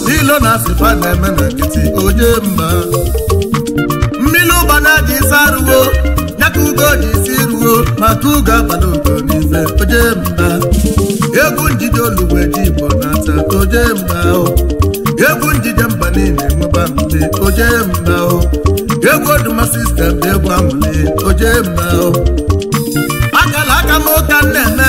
ụdị ilo na asịfa na-eme na nkịtị onye mma mmiri ụba na dị isi arụwo nyaka ugo ji isi ruo maka ugo abalị ugo n'ife onye mma egwu njide oluwe ji igbo na-ata onye mma egwu njide mba niile enweba mbe onye mma egwu oduma sistem egwu amụle onye mma agala aka m ụka na-eme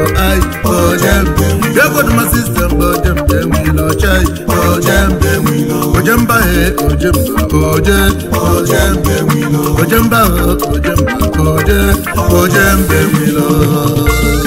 eye for dem dey go my system for dem dem will not change for dem ojemba he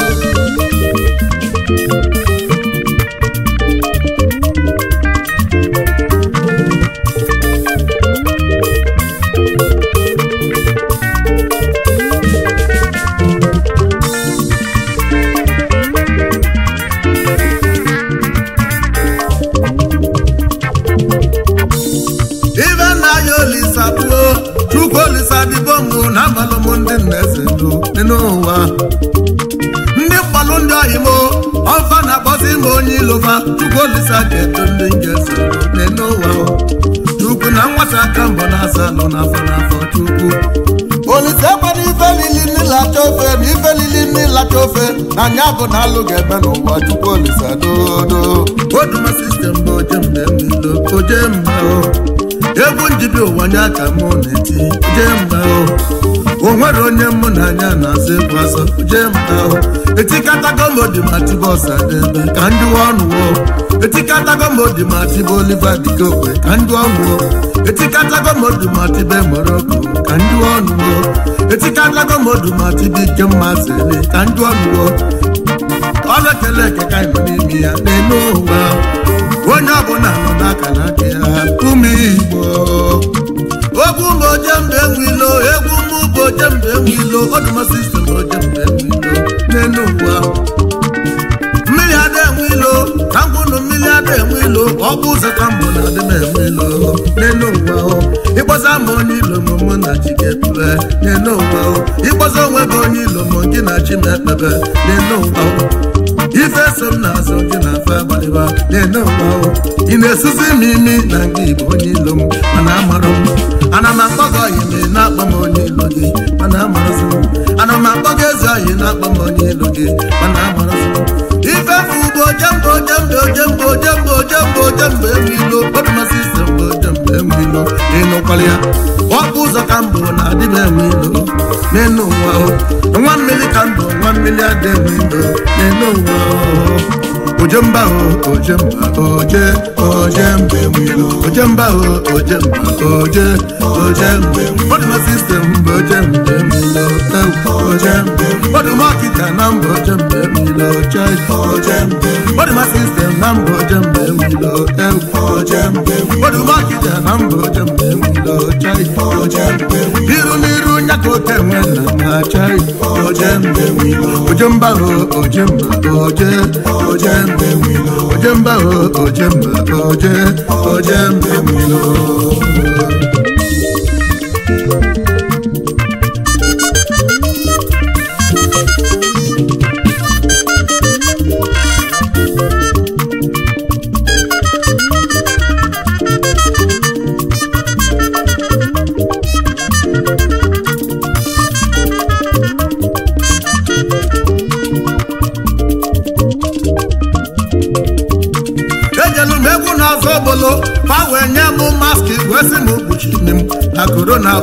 ajọ ndị ga-ese nene ụwa chukwu na nwata aka mbọ na-asa nọ n'afọ n'afọ chukwu olise gbara ife lili n'ilacha ofe na ife lili n'ilacha ofe na anya bụ na alụ ga-eme n'ụwa chukwu olise dodo oduma sistem bụ oje mgbe m ilo oje mma egwu njibi ụwa nye aka mụ na-eti oje mma o nwere onye mụ na anya na-azụ egwu azọ oje mma etikatago m odi ma tibọs ebe ka ndị ọnụ Etikata modi ma tibe oliva dikokwe ka ndị ọṅụọ Etikata modi ma tibe moroko ka ndị ọṅụọ Etikata modi ma tibe ike mma zele ka ndị ọṅụọ ọ na-ekele eke ka ịnọ n'ime ya na-eme ụwa onye ọbụla nọ n'aka na aka ya ume igbo egwu ụmụ mgbe nwilo egwu ụmụ bụ ojembe nwilo ọdụmasị isi na ojembe nwilo na-enu ụwa mmiri ada enwe ilo ka mmiri abịa enwe ilo ọ bụ ụzọka mbụ na adị m enwe ilo n'elu ụwa ịkpọsa ma onye ilo m mụ na chi ga-ekpebe ịkpọsa onwe gị onye ilo m gị na chi na ife so m na-azụ gị na afọ n'elu ị na-esuzi m imi na nke onye ilo m mana amarụ m ana m akpọ ọyị mee m onye ilo gị mana amarụ m ana m akpọ jembo jembo jembo jembo jembo jembo ewilo ọdụmasị ise mbo jembo ụzọ ka mbụ na nwa mmiri ka mbụ nwa mmiri adị enwe ilo ojemba o ojemba oje ojembe wilo ojemba o ojemba oje ojembe wilo system ojembe wilo ojembe wilo market na mbo ojembe wilo church ojembe wilo system na mbo ojembe wilo ojembe wilo market na mbo ojembe wilo church ojembe aka okenwe na achai ojemba ojemba oje ojemba ojemba oje ojembe wilo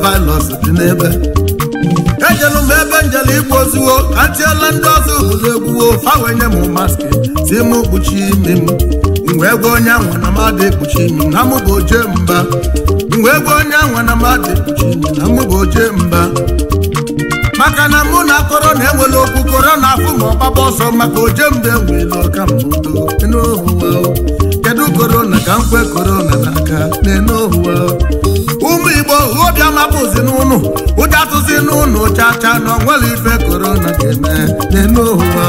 vaịrọs dị n'ebe ejelu m ebe njelu igbo ozuwo atiela ndị ọzọ ụzọ egwuwo fawenye m maski si m kpuchi imi m mgbe ego onye anwa na mmadụ ekpuchi imi na mụ bụ oje mba mgbe ego onye anwa na mmadụ ekpuchi imi na mụ bụ oje mba maka na mụ na akọrọ na-ewele okwu kọrọ na afụ ma ọgbaba ọsọ maka oje mba enwela ọka mbudo n'ụwa kedu korona ka nkwe korona na n'enu ụwa ụmụ igbo obi amapụzi n'ụnụ ụja tụzi n'ụnụ chacha na onwere ife korona ga-eme n'elu ụwa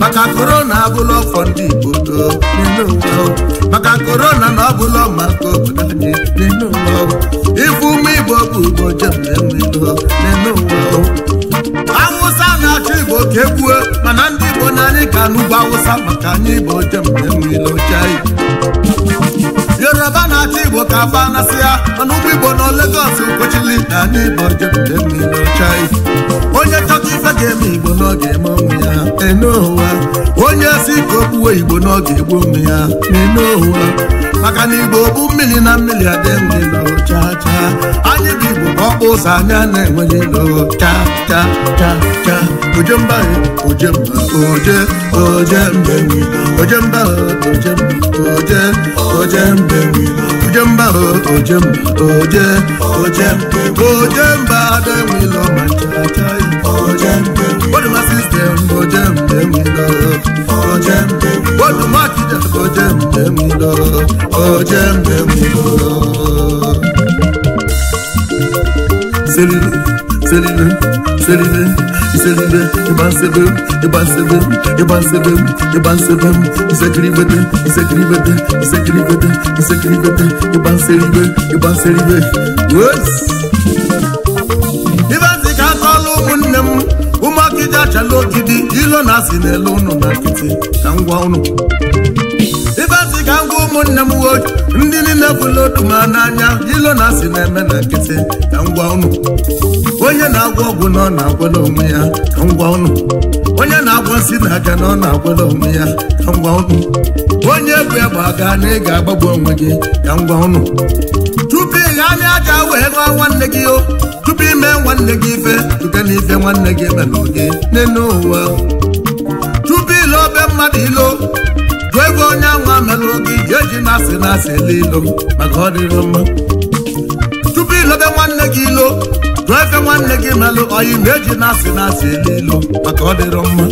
maka korona abụla ọfọ ndị igbo n'elu ụwa maka korona na ọbụla maka obodo anyị n'elu ụwa ife ụmụ igbo bụ igbo jem na n'elu ụwa awụsa na-achọ igbo ka ekwue mana ndị igbo na anyị ka n'ugwu awụsa maka anyị igbo jem na-enwe anyị Yoruba na-achị Igbo ka afa anasịa mana ụgbọ Igbo nọ Lagos kwechili na ndị Igbo jepụta mmiri n'ọcha onye chọta ife ga-eme Igbo n'oge eme ya en'ụwa onye si ka o kpuwe Igbo n'oge egbu ụmụ ya n'en'ụwa maka na Igbo bụ mmiri na mmiri adị nri ụzanyana enweghị lọ cha, ojemba ojemba oje ojembe ojemba ojemba oje ojembe ojemba ojemba oje ojembe ojemba adenwilo ma chachayi ojembe boduma sistem ojembe wilo ojembe boduma kija ojembe wilo ojembe wilo. Selime, Selime, Selime, Selime, Ebansebe, Ebansebe, Ebansebe, Ebansebe, Zekribe, Zekribe, Zekribe, Zekribe, Ebansebe, Ebansebe, ka kọlụ ụmụnne m, ụmụakịja chala ogidi, ilo na-asị n'elu ụnụ na nkịtị, na ngwa ụnụ. ibe asị ka ngwa ụmụnne m nwoke ndị niile bụla otu ma n'anya ilo na asị na-eme na nkịtị ka ngwa ụnụ onye na agwa ọgwụ na ọ na-agwọla onwe ya ka ngwa ụnụ onye na agwa nsị na aga na ọ na-agwọla onwe ya ka ngwa ụnụ onye bụ egbe aga na ị ga-agbagbu onwe gị ka ngwa ụnụ tupu ị ghaa aja wee gụọ nwanne gị o tupu ime nwanne gị ife dute na ife nwanne gị emela oge n'elu ụwa tupu ile obe mmadụ ilo nwa melụ gị ga-eji na-asị na-asị ele maka ọ dịrị mma tupu ilobe nwanne gị ilo tụọ efe nwanne gị melụ oyi na-eji na-asị na-asị ele maka ọ dịrị mma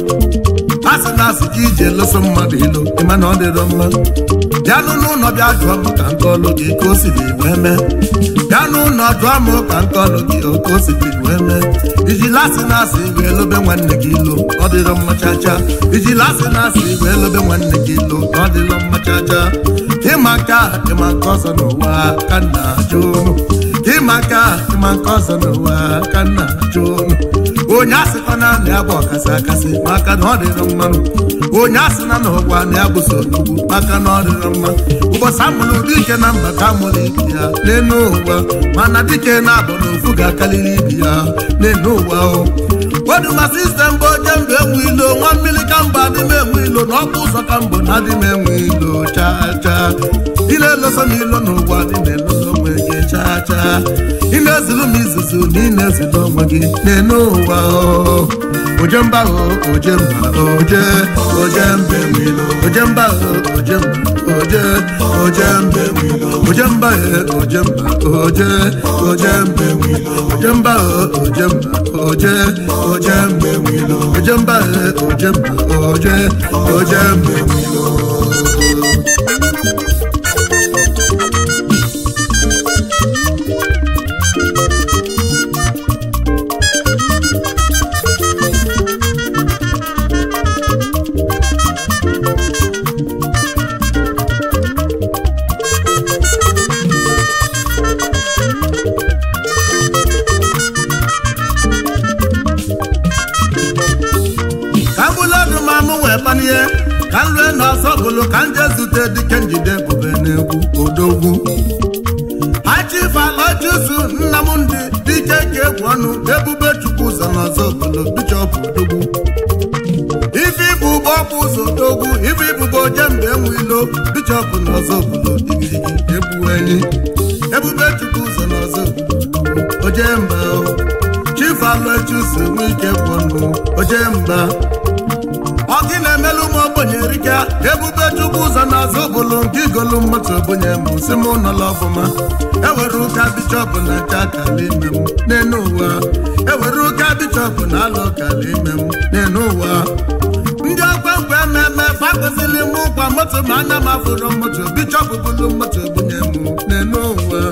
asị na asị ka iji eloso mmadụ ilo ịma na ọ dịrọ mma bịanụ n'ụlọ bịa jụọ m ka nke ọlụ gị ka o siri wee mee bịanụ ụlọ jụọ m ka nke ọlụ gị ka o siri wee mee ijila asị na asị wee lobe nwanne gị ilo ọ dịrọ mma chacha ijila asị na asị wee lobe nwanne gị ilo ọ dịrọ mma chacha ịma nke a ịma nke ọzọ n'ụwa ka nna ajụ ịma nke a ịma nke ọzọ n'ụwa ka nna ajụ onye asị fa na anị agba ọkasị akasị maka na ọ dịrị mmanụ onye asị na na ọgwa na ya bụso maka na ọ dịrị mma ụbọchị amụrụ ụdị ike na mbata amụrụ ibi ya n'elu ụwa mana dike na-abụ na ofu ga-akarịrị ibi ya n'elu ụwa ahụ oduwa sistem bụ oje mbụ enwe ilo nwa mmiri ka mba adị m enwe ilo na ọkụ ụzọ ka mbụ na adị m enwe ilo chaa chaa ile eloso na n'ụwa dị ụwa chaa chaa ị na-ezulu m izuzu na ị na-ezulu onwe gị na-ene ụwa ojemba ojemba oje ojembe wilo ojemba ojemba oje ojembe wilo ojemba ojemba oje ojembe wilo ojemba ojemba oje ojembe wilo ojemba ojemba oje ojembe wilo igbo jembe enwilo bishọp na ọzọ ebu ebuweni ebube chukwu ụzọ n'ọzọ na ọzọ ojemba chifalụchuso nwike bụnụ ojemba ọgị na-emelu ụmụ ogbenye erika ebube chukwu ụzọ n'azụ ọzọ obodo nke igolu mmadụ ogbenye m si m nọla ọfụma ewere ụka bishọp na acha akala ime m n'enu ụwa ewere ụka bishọp na alụ ọkala ime m n'elu ụwa ndị ọkwa mgbe mmemme fakụzili m ụgba moto ma ana m afụrụ moto bichọpụ bụlu moto bunye m n'enu uwe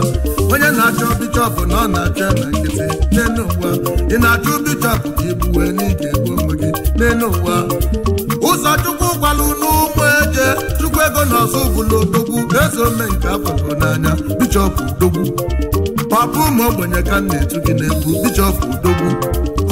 onye na-achọ bichọpụ na ọ na-achọ na nkịtị n'enu uwe ị na achọ bichọpụ ka ibu wee n'ike gbuo ụmụ gị n'enu uwe ụzọ chukwu gwalụ n'ụmụ eje chukwu ego na ọzọ bụlụ odogwu eze ome nke afọgo n'anya bichọpụ Dogwu. papa ụmụ ogbenye ka m na-etu gị na-egbu bichọpụ Dogwu.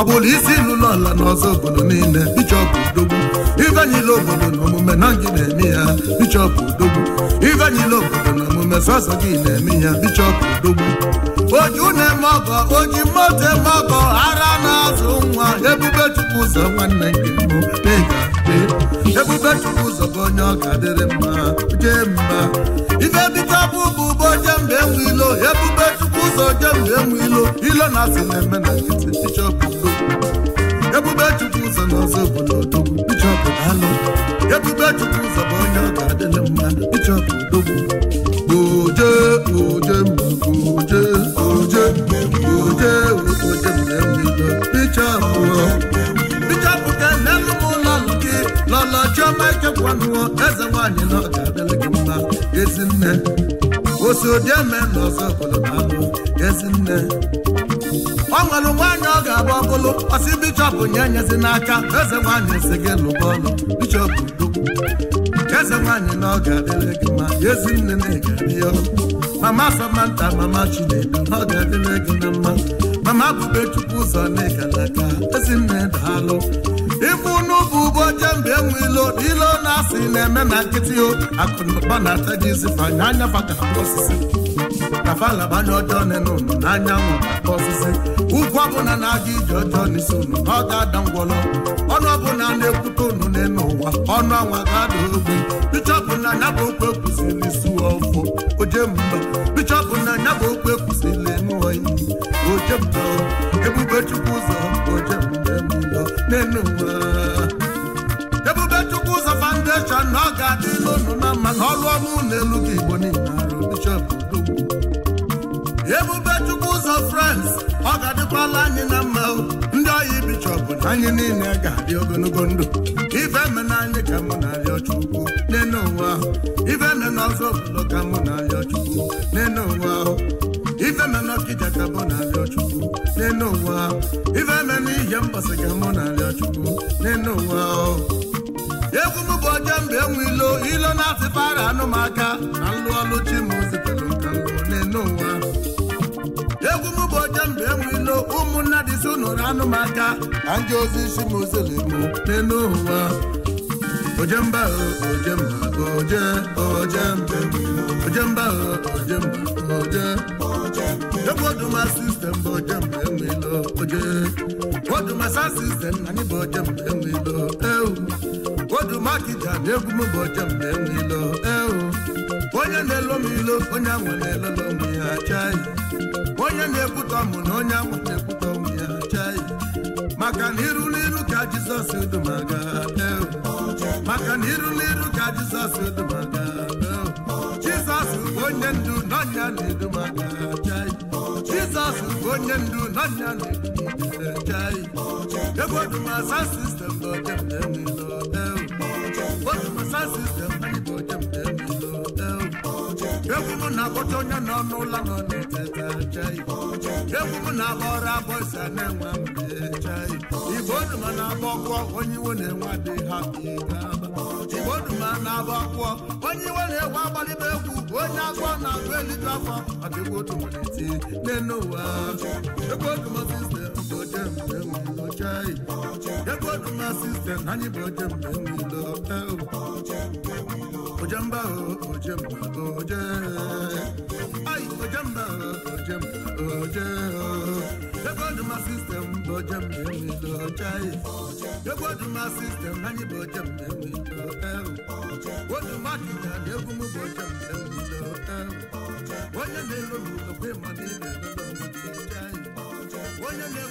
ọ isi n'ụlọ ala n'ọzọ obodo niile bichọpụ odogwu ivenyila obodo na omume na gị na-eme ya bichọpụ odogwu ivenyila obodo na omume sọsọ gị na-eme ya bichọpụ odogwu oju na-eme ọgọ oji moto eme ọgọ ara na-azụ nwa ebube chukwu ụzọ nwanne gị mbụ ga ega ebube chukwu ụzọ bụ onye ọ ga-adịrị mma jee mma ife bikọpụ bụ ụbọ mgbe enwe ilo ebube chukwu ojebu emu ilo ilo na asị na-eme na nkịtị bishọp ebube chukwu ụzọ na ọzọ obodo odogwu bishọp anụ ebube chukwu ụzọ bụ onye ọ ga-adịlị mmadụ bishọp odogwu oje oje oje oje oje oje mmemme bishọp bishọp ka n'elu m ụlọ gị lọlọ chiọma ichekwanụọ eze nwaanyị na ọ ga-adịlị gị mma ezi nne osi odieme na ọzọ obodo na-abụ ezinne o nwere nwaanyị ọ ga-agba ọkụlụ ọsị bishọp nye nyezi n'aka eze nwaanyị esi gị lụba ọlụ bishọp dukwu eze nwaanyị na ọ ga-adịrị gị ma ezi nne na ga-adịya mama samanta mama chinedu ọ ga-adịrị gị na mma mama bubechukwu ụzọ naịgalaka nne daalụ ife unu bụ ụbọ jembe enwe ilo ilo na-asị na-eme na nkịtị o akụnụba na-ata gị izifanye anya baka osisi kafala gbanye ọjọọ n'enu n'anyanwụ ọsịsị ugwu ọbụla na-aga ije ọjọọ n'isi unu ọ ga-ada ngwọrọ ọnụ ọbụla na-ekwute unu n'elu ụwa ọnụ anwa ga-ada ogbe bichọpụ na ya bụ okwu ekwuzili su ọfọ oje mba bichọpụ na ya bụ okwu ekwuzili nụọ iyi oje mba ebube chukwu ụzọ oje mba n'enu ụwa ebube foundation na ọ ga-adị n'ọnụ na mma ọrụ ọma n'elu elu gị igbo niile arụ bishọp ebube chukwu ụzọ frans ọ ga-adịkwala anyị na mma ndị ọya ibichọpụ na anyị niile ga-adị ogologo ndụ ife me na anyị ka mụ na-arịọ chukwu n'enu onwe ahụ ife me na ọzọ obodo ka mụ na-arịọ chukwu n'enu onwe ahụ ife me na ọkịja ka mụ na-arịọ chukwu n'enu onwe ahụ ife me na ihe mbọsị ka mụ na-arịọ chukwu n'enu onwe ahụ egwu m bụ ọjọọ mgbe enwe ilo ilo na-asịpara anụmaka na nlụ ọlụ ozi unu na anụmaka na ndị ozi isi m ozelemu n'elu ụwa ojemba ojemba oje oje ojemba ojemba oje mba ebe oduma sistem bụ ojemba enwelo oje oduma sa sistem anyị bụ ojemba enwelo ewu oduma kija na egwu m bụ ojemba enwelo ewu onye na-elo m ilo onye ahụ na-elolo m ya chaghị onye na-ekwutọ mụ na onye ahụ na-ekwutọ m maka na n'iru ka jizọs e dumaga maka na iru n'iru ka jizọs e dumaga jizọs bụ onye ndu n'ọnya na-edumaga jizọs bụ onye ndu n'ọnya na-edumaga ebe odumasa sistem n'ojem na-enwe n'ọdeu odumasa sistem egwu na-akpọta onye nọ n'ụlọ nọ na-eteta chai egwu m na-agbọrọ agbọ si na-enwe mbe chai igbo duma na-agba onye iwe na-enwe dị ha igbo duma na-agba onye iwe na-egwu agbalịba egwu onye agwọ na-agụ eliju afọ ọdịgwa otu nwere iti n'elu ụwa egwu oduma sistem bụ oje mgbe nwelo chai egwu oduma sistem anyị bụ oje mgbe nwelo ojemba o oh, ojemba oje ọdụma sistem bụ oje na-enwe oje anyị ọdụma sistem anyị bụ na-enwe oduma kinya na bụ na-enwe onye na-ero m okwe ma na ị na onye na ị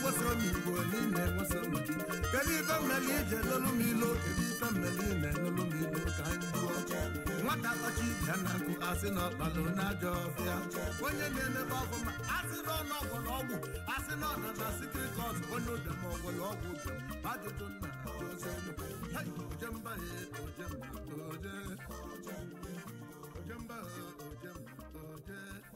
na m gị kedu ije nwata na nkụ asị na ọkpalụ n'ajọ ọfịa onye na-emebe ọgwụ ma asị na ọnụ ọgwụ ọgwụ asị na ọna na sikrikọt onye ụdama na ọgwụ